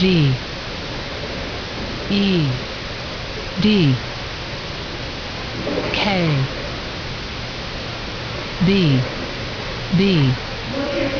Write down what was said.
G E D K B B